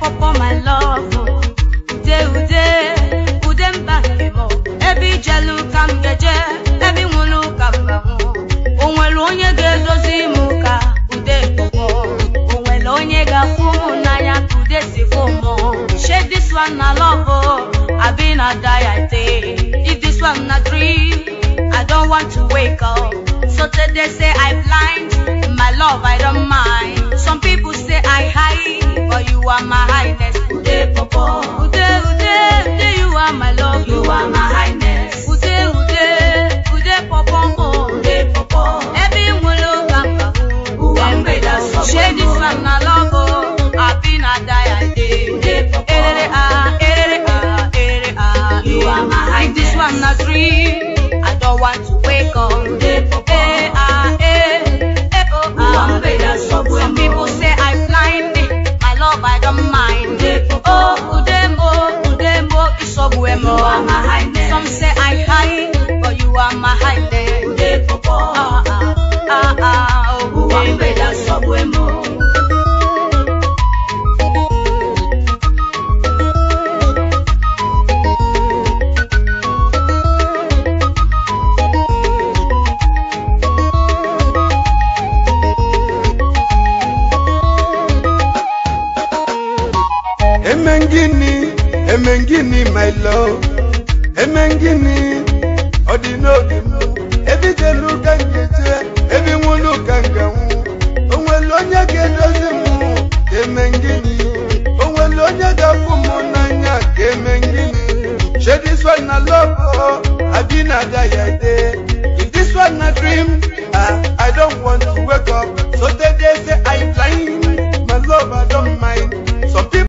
make for my love. Oh. Ude ude, ude mba n'ibo. Ebe ije luka m geje, ebe inwu luka mba mụ. Oh. O nwere onye ga-edozi m ude kpọmọ. O nwere onye ga-afụ m ude si fụ m. Oh. this one na love, I be na die I day. this one na dream, I don't want to wake up. So today say I blind, my love I don't mind you are my highness. Ude popo. Ude ude ude you are my love. You are my highness. Ude ude ude popo. Ude popo. Ebi mulo kaka. Uwa mbeda sobo. Shedi sana lobo. Abi na daya day. Ude popo. Erere ah erere ah erere ah. You are my highness. This one na dream. mind. Oh, Udemo, Udemo, Isobuemo. Some say I high, but you are my high. Emengini, Emengini, my love, Emengini, Odinodi.